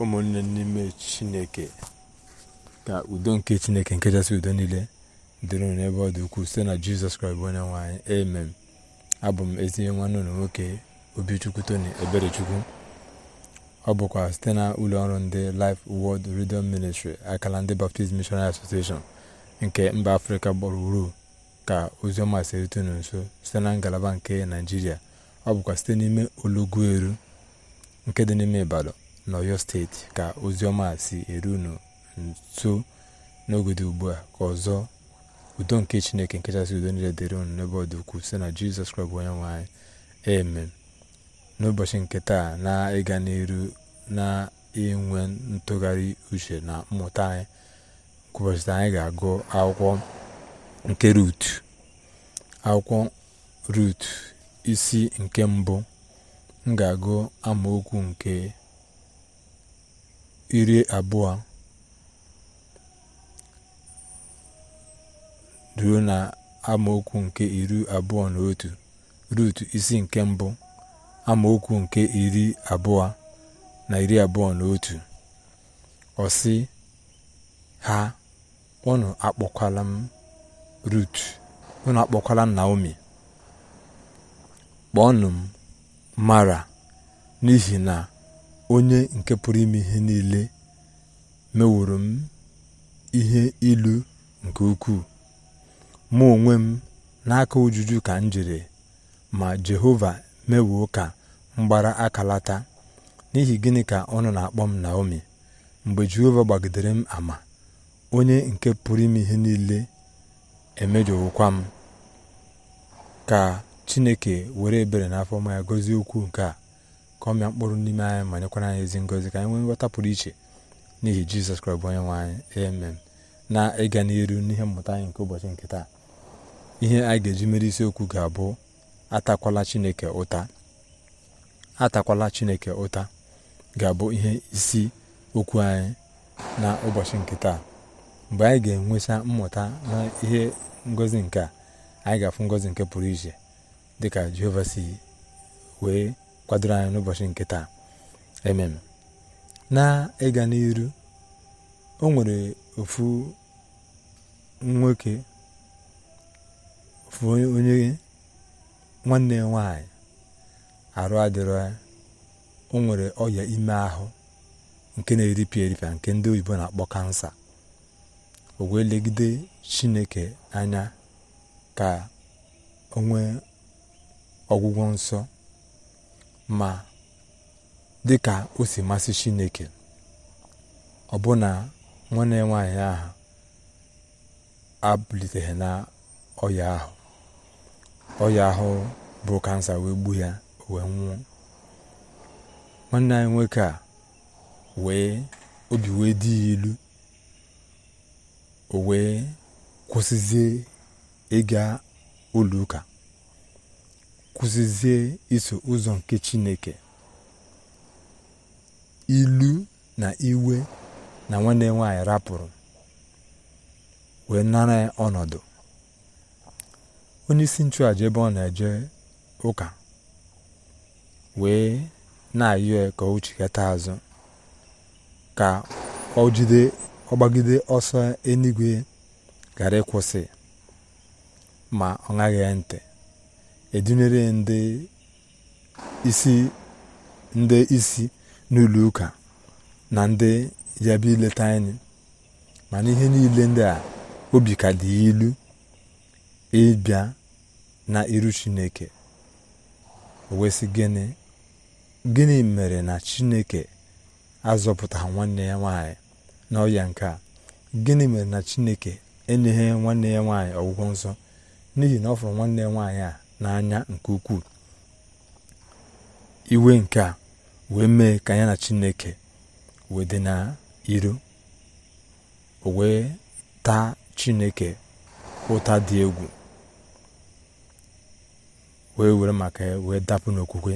ụmụnne n'ime chineke ka udo nke chineke nke kachasị udo niile dịrị unu n'ebe ọ dị ukwuu site na jizọs kraịst bụ onye nwaanyị amen abụ m ezinye nwanne ụlọ nwoke obichukwu tony eberechukwu ọ bụkwa site na ụlọ ọrụ ndị life world redio ministry akala ndị baptist missionary association nke mba afrịka gburugburu ka oziọma si nso site na ngalaba nke naijiria ọ bụkwa site n'ime olugbu eru nke dị n'ime ibadan n'ọyọ steeti ka oziọma si eru unu nso ugbu a ka ọzọ udo nke chineke nkechasị udo niile dịrị unu n'ebe ọ dị ukwuu site na jizọs kraịst bụ onye nwe anyị amen n'ụbọchị nke taa na ịga n'iru na inwe ntụgharị uche na mmụta anyị ụbọchị anyị ga-agụ akwụkwọ nke rut akwụkwọ rut isi nke mbụ m ga-agụ amaokwu nke iri abụọ ruo na amaokwu nke iri abụọ na otu rut isi nke mbụ amaokwu nke iri abụọ na iri abụọ na otu ọsị ha unu akpọkwala m rut unu akpọkwala m naomi kpọọnụ m mara n'ihi na onye nke pụrụ ime ihe niile meworo m ihe ilu nke ukwuu mụ onwe m n'aka ojuju ka m jiri ma jehova mewuo ka m gbara akalata n'ihi gịnị ka ọ nọ na-akpọ m naomi mgbe jehova gbagidere m ama onye nke pụrụ ime ihe niile emejọwụkwa m ka chineke were ebere n'afọ ya gọzie okwu nke a ka ọ mịa mkpụrụ n'ime anyị ma nyekwara anyị ezi ngozi ka anyị nwee nghọta pụrụ iche n'ihi jizọs kraịst bụ onye nwe anyị emem na ịga n'iru n'ihe mmụta anyị nke ụbọchị nke taa ihe anyị ga-eji mere isiokwu ga-abụ atakwala chineke ụta atakwala chineke ụta ga-abụ ihe isi okwu anyị na ụbọchị nke taa mgbe anyị ga-enwesa mmụta na ihe ngozi nke a anyị ga-afụ ngozi nke pụrụ iche dịka jehova si wee kwadoro anyị n'ụbọchị nke taa ememe na ịga n'iru o nwere ofu nwoke ofu onye nwanne ya nwanyị arụ adịrọ o nwere ọya ime ahụ nke na-eripịa eripịa nke ndị oyibo na-akpọ kansa o wee legide chineke anya ka o ọgwụgwọ nsọ ma dị ka o si masị chineke ọbụna nwanne ya nwaanyị ahụ abụliteghị na ọya ahụ ọya ahụ bụ kansa wee gbuo ya wee nwụọ nwanne anyị nwoke a wee obi wee dị ya ilu o wee kwụsịzie ịga ụlọ ụka kwụsịzie iso ụzọ nke chineke ilu na iwe na nwanne nwaanyị rapụrụ wee nara ọnọdụ onye isi nchụàja ebe ọ na-eje ụka wee na-ayọ ka azụ ka ọ jide ọgbagide ọsọ enigwe gara ịkwụsị ma ọ ṅaghị ntị edunyere ndị isi ndị isi n'ụlọ ụka na ndị ya bịa ileta anyị mana ihe niile ndị a obi ka dị ilu ịbịa na iru chineke wesị gịnị gịnị mere na chineke azọpụtara nwanne ya nwaanyị n'ọya nke a gịnị mere na chineke enyeghị nwanne ya nwaanyị ọgwụgwọ nsọ n'ihi na ọ fụrụ nwanne ya nwaanyị a n'anya nke ukwuu iwe nke a wee mee ka anya na chineke wee dị na iro o wee taa chineke ụta dị egwu wee were maka wee dapụ n'okwukwe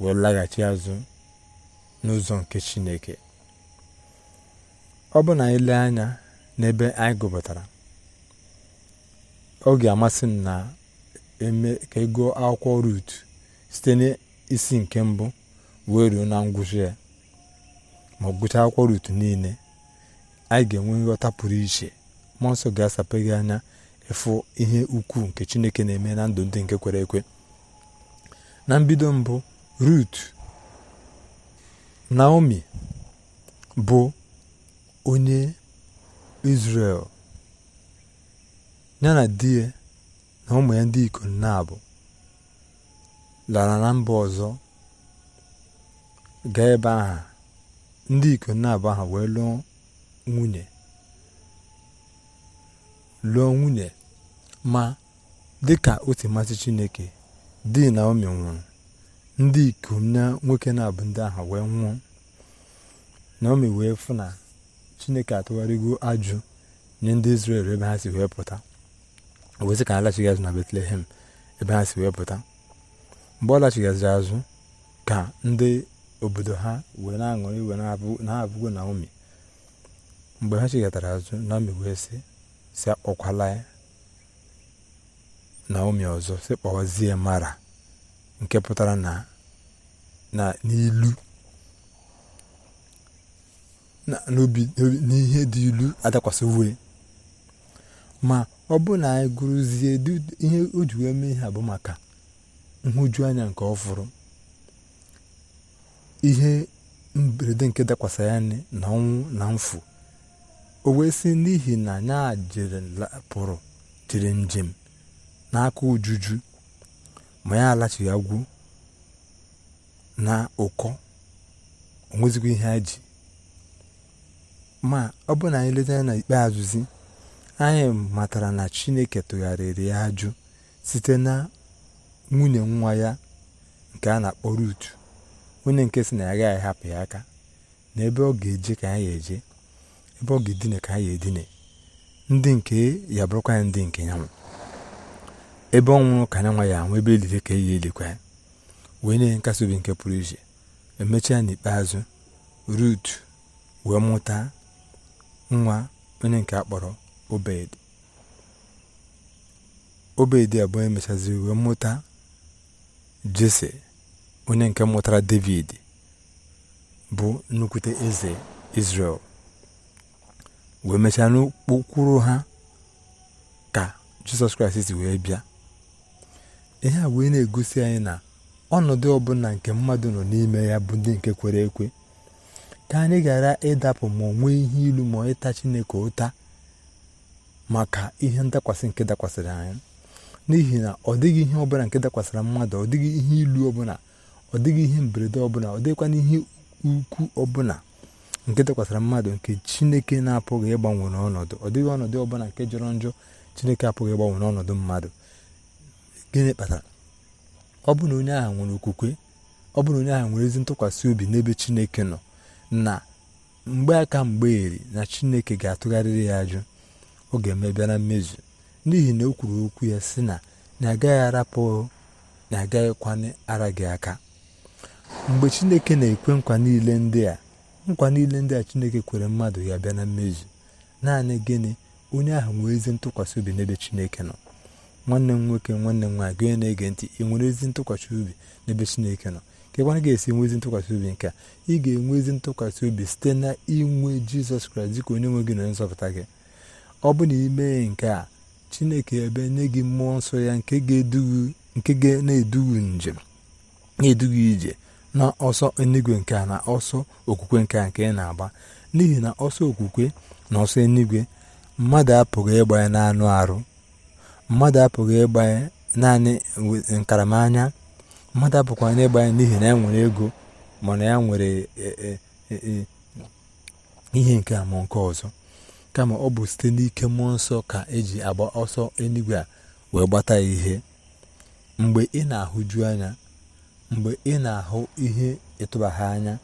wee laghachi azụ n'ụzọ nke chineke ọ bụ na anyị lee anya n'ebe anyị gụpụtara ọ ga-amasị m na eme ka ị gụọ akwụkwọ rut site n'isi nke mbụ wee ruo na ngwụcha ya ma ọ gụchaa akwụkwọ rut niile anyị ga-enwe nghọta pụrụ iche mmụọ nsọ ga-asape anya ịfụ ihe ukwuu nke chineke na-eme na ndụ ndị nke kwere ekwe na mbido mbụ rut naomi bụ onye izrel ya na di ya na ụmụ ya ndị ikom na lara na mba ọzọ ga ebe aha ndị ikom na-abụ aha wee lụọ nwunye ma dịka o si masị chineke di na omi nwụrụ ndị ikom na nwoke na-abụ ndị ahụ wee nwụọ na omi wee fụ na chineke atụgharịgo ajụ nye ndị Izrel ebe ha si wee pụta wezi ka ha azụ na Betlehem ebe ha si wee pụta mgbe ọ lachighaziri azụ ka ndị obodo ha wee na-aṅụrị iwe na ha na Naomi mgbe ha chighatara azụ na Naomi wee sị si akpọkwala Naomi ọzọ si kpọwazie Mara nke pụtara na n'ilu n'ihe dị ilu adakwasị ma ọ bụrụ na anyị gụrụzie ihe o ji wee mee ihe bụ maka nhụjuanya nke ọfụrụ ihe mberede nke dakwasa ya na ọnwụ na mfu o wee si n'ihi na ya jere pụrụ jiri njem n'aka ojuju ma ya alachighị agwụ na ụkọ onwezikwa ihe ha ji ma ọ bụrụ na anyị leta ya na ikpeazụzi anyị matara na chineke tụgharịrị ya ajụ site na nwunye nwa ya nke a na-akpọ Rut onye nke si na ya gaghị hapụ ya aka na ebe ọ ga-eje ka anyị eje ebe ọ ga-edine ka anyị edine ndị nke ya bụrụkwa ya ndị nke ya ebe ọ nwụrụ ka ya nwa ya anwụ ebe eliri ka eyi elikwa ya wee nye nkasi obi nke pụrụ iche emechaa n'ikpeazụ Rut wee mụta nwa onye nke a kpọrọ obed obed abụọ emechazi wee mụta jese onye nke mụtara david bụ nnukwute eze israel wee mechaa n'okpokpuru ha ka jizọs kraịst si wee bịa ihe a wee na-egosi anyị na ọnọdụ ọbụla nke mmadụ nọ n'ime ya bụ ndị nke kwere ekwe ka anyị gara ịdapụ ma ọ nwee ihe ilu ma ịta chineke ụta maka ihe ndakwasị nke dakwasịrị anyị n'ihi na ọ dịghị ihe ọbụla nke dakwasịra mmadụ ọ dịghị ihe ilu ọbụla ọ dịghị ihe mberede ọbụla ọ dịghịkwana ihe ukwu ọbụla nke dakwasịrị mmadụ nke chineke na-apụghị ịgbanwe n'ọnọdụ ọ dịghị ọnọdụ ọbụla nke jọrọ njọ chineke apụghị ịgbanwe n'ọnọdụ mmadụ gịnị kpatara ọ bụ na onye agha nwere okwukwe ọ bụ na onye agha nwere ezi ntụkwasị obi n'ebe chineke nọ na mgbe aka mgbe eri na chineke ga-atụgharịrị ya ajụ ọ ga-emebịa na mmezu n'ihi na o kwuru okwu ya sị na na agaghị arapụ na agaghịkwana ara gị aka mgbe chineke na-ekwe nkwa niile ndị a nkwa niile ndị a chineke kwere mmadụ ya bịa na mmezu naanị gịnị onye ahụ nwee ezi ntụkwasị obi n'ebe chineke nọ nwanne m nwoke nwanne m nwaanyị gị na-ege ntị ị nwere ezi ntụkwasị obi n'ebe chineke nọ kekwara ga-esi enwe ezi ntụkwasị obi nke a ị ga-enwe ezi ntụkwasị obi site na inwe jizọs kraịst dịka onye nwe gị na onye nzọpụta gị ọ bụ na ime nke a chineke ebe nye gị mmụọ nsọ ya nke ga na-edugu njem na edughị ije na ọsọ enigwe nke a na ọsọ okwukwe nke a nke ị na-agba n'ihi na ọsọ okwukwe na ọsọ enigwe mmadụ apụghị ịgbanye ya arụ mmadụ apụghị ịgbanye naanị nkaramanya mmadụ apụkwanye ịgba n'ihi na ya nwere ego mana ya nwere e, e, e, ihe nke a ma nke ọzọ kama ọ bụ site n'ike mmụọ nsọ ka eji agba ọsọ eluigwe a wee gbata ya ihe mgbe ị na-ahụju anya mgbe ị na-ahụ ihe ịtụbaghị anya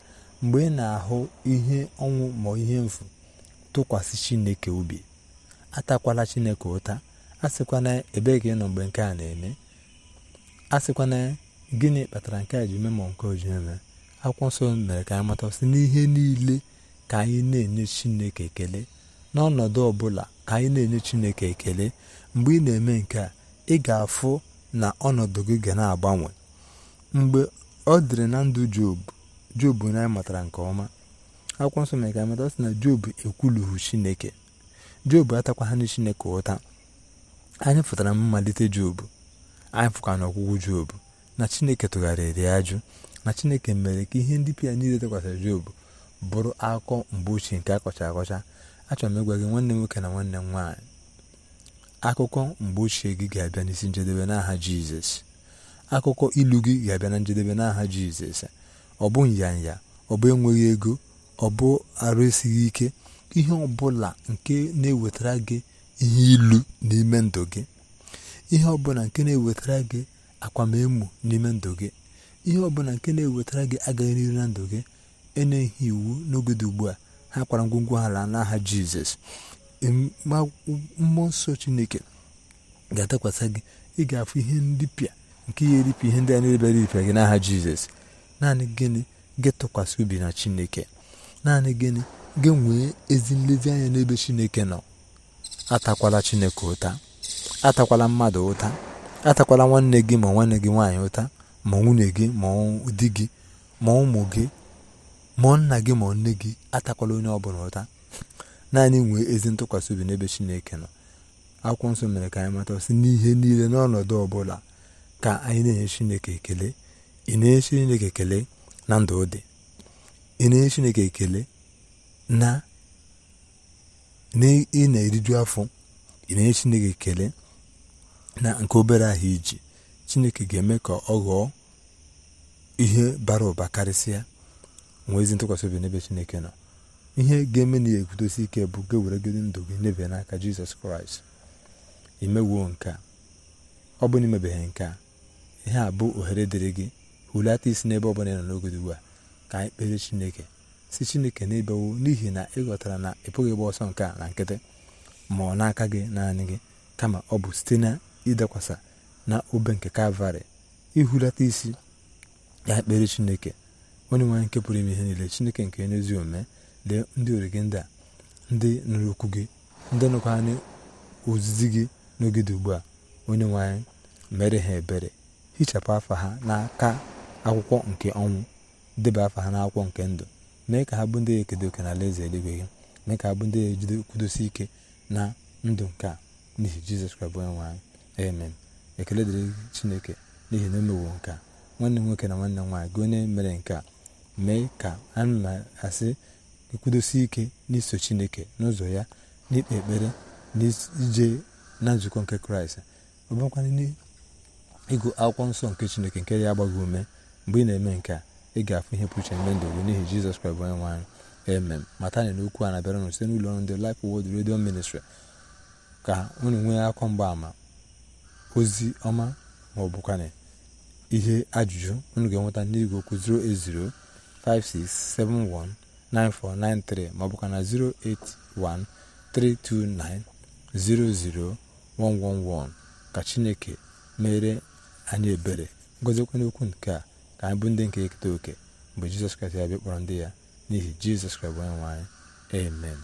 mgbe ị na-ahụ ihe ọnwụ ma ihe mfu tụkwasị chineke obi atakwala chineke ụta asịkwana ebee ka ị nọ mgbe nke a na-eme asịkwana gịnị kpatara nke a ji eme ma nke oji eme akwụkwọ nsọ mere ka anyị mata sị n'ihe niile ka anyị na-enye chineke ekele n'ọnọdụ ọbụla ka anyị na-enye chineke ekele mgbe ị na-eme nke a ị ga-afụ na ọnọdụ gị ga na-agbanwe mgbe ọ dịrị na ndụ jobu jobu na matara nke ọma akwụkwọ nsọ mere ka amata sị na jobu ekwulughị chineke jobu atakwaghị chineke ụta anyị fụtara mmalite jobu anyị fụkwa na ọgwụgwụ jobu na chineke tụgharịrị ajụ na chineke mere ka ihe ndị pia niile tekwasịrị jobu bụrụ akụkọ mgbe ochie nke akọcha akọcha achọrọ m ịgwa gị nwanne m nwoke na nwanne m nwaanyị akụkọ mgbe ochie gị ga-abịa n'isi njedebe n'aha jizọs akụkọ ilu gị ga-abịa na njedebe n'aha jizọs ọ bụ nyanya ọ bụ enweghị ego ọ bụ arụ esighị ike ihe ọbụla nke na-ewetara gị ihe ilu n'ime ndụ gị ihe ọbụla nke na-ewetara gị akwamemo n'ime ndụ gị ihe ọbụla nke na-ewetara gị agaghị n'iru na ndụ gị enyeghị iwu n'oge dị ugbu a ha kwara ngwongwo ala n'aha jizọs mmụọ nsọ chineke ga-adakwasa gị ị ga-afụ ihe ndị pịa nke ihe eripịa ihe ndị a na-ebere iripịa gị n'aha jizọs naanị gịnị gị tụkwasị obi na chineke naanị gịnị gị nwee ezi anya n'ebe chineke nọ atakwala chineke ụta atakwala mmadụ ụta atakwala nwanne gị ma nwanne gị nwaanyị ụta ma nwunye gị ma di gị ma ụmụ gị mụọ nna gị ma nne gị atakwala onye ọbụla ụta naanị nwee ezi ntụkwasị obi n'ebe chineke nọ akwụkwọ nsọ mere ka anyị mata sị n'ihe niile n'ọnọdụ ọbụla ka anyị na-enye chineke ekele ị na-enye chineke ekele na ndụ dị ị na-enye chineke ekele na ị na-eriju afọ ị na-enye chineke ekele na nke obere ahụ iji chineke ga-eme ka ọ ghọọ ihe bara ụba karịsịa nwee ntụkwasị obi n'ebe chineke nọ ihe ga-eme na ya ekwudosi ike bụ ga eweregodi ndụ gị nebe n'aka jizọs kraịst imewuo nke a ọ bụ na imebeghị nke a ihe a bụ ohere dịrị gị hulata isi n'ebe ọbụla ị nọ n'ogodo ugbu a ka anyị kpere chineke si chineke n'ebe wuo n'ihi na ị na ị pụghị ịgba ọsọ nke a na nkịtị ma ọ n'aka gị naanị gị kama ọ bụ site na ịdakwasa na obe nke kalvarị ihulata isi ya kpere chineke onye nwe nke pụrụ ime ihe niile chineke nke onye ezi omume lee ndị orige ndị a ndị nụrụ okwu gị ndị nụkwa anyị ozizi gị n'oge ugbu a onye nwe mere ha ebere hichapụ afa ha n'aka akwụkwọ nke ọnwụ deba afa ha n'akwụkwọ nke ndụ mee ka ha bụ ndị ekedo oke n'ala eze eluigwe gị mee ka ha bụ ndị ejide kwudosi ike na ndụ nke a n'ihi jizọs kraịst bụ onye nwe anyị ekele dịrị chineke n'ihi na emewo nke a nwanne m nwoke na nwanne m nwaanyị gị onye mere nke a mee ka anyị na-asị ekwudosi ike n'iso chineke n'ụzọ ya n'ikpe ekpere n'ije na nzukọ nke kraịst ọ n'ịgụ akwụkwọ nsọ nke chineke nke ya agbaghị ume mgbe ị na-eme nke a ị ga-afụ ihe pụrụ iche ndị gị n'ihi jizọs kraịst onye nwe anyị emem mata anyị na okwu a na-abịara n site n'ụlọ ọrụ ndị Life Word Radio Ministry ka unu nwee akọ ama ozi ọma maọbụkwanị ihe ajụjụ unu ga-enweta n'igwe okwu 080 08056719493 maọbụka na 08132900111 ka chineke mere anyị ebere ngozikwa n'okwu nke a ka anyị bụ ndị nke eketa oke mgbe jizọs kraịst ya bịa kpọrọ ndị ya n'ihi jizọs kraịst bụ onye nwe amen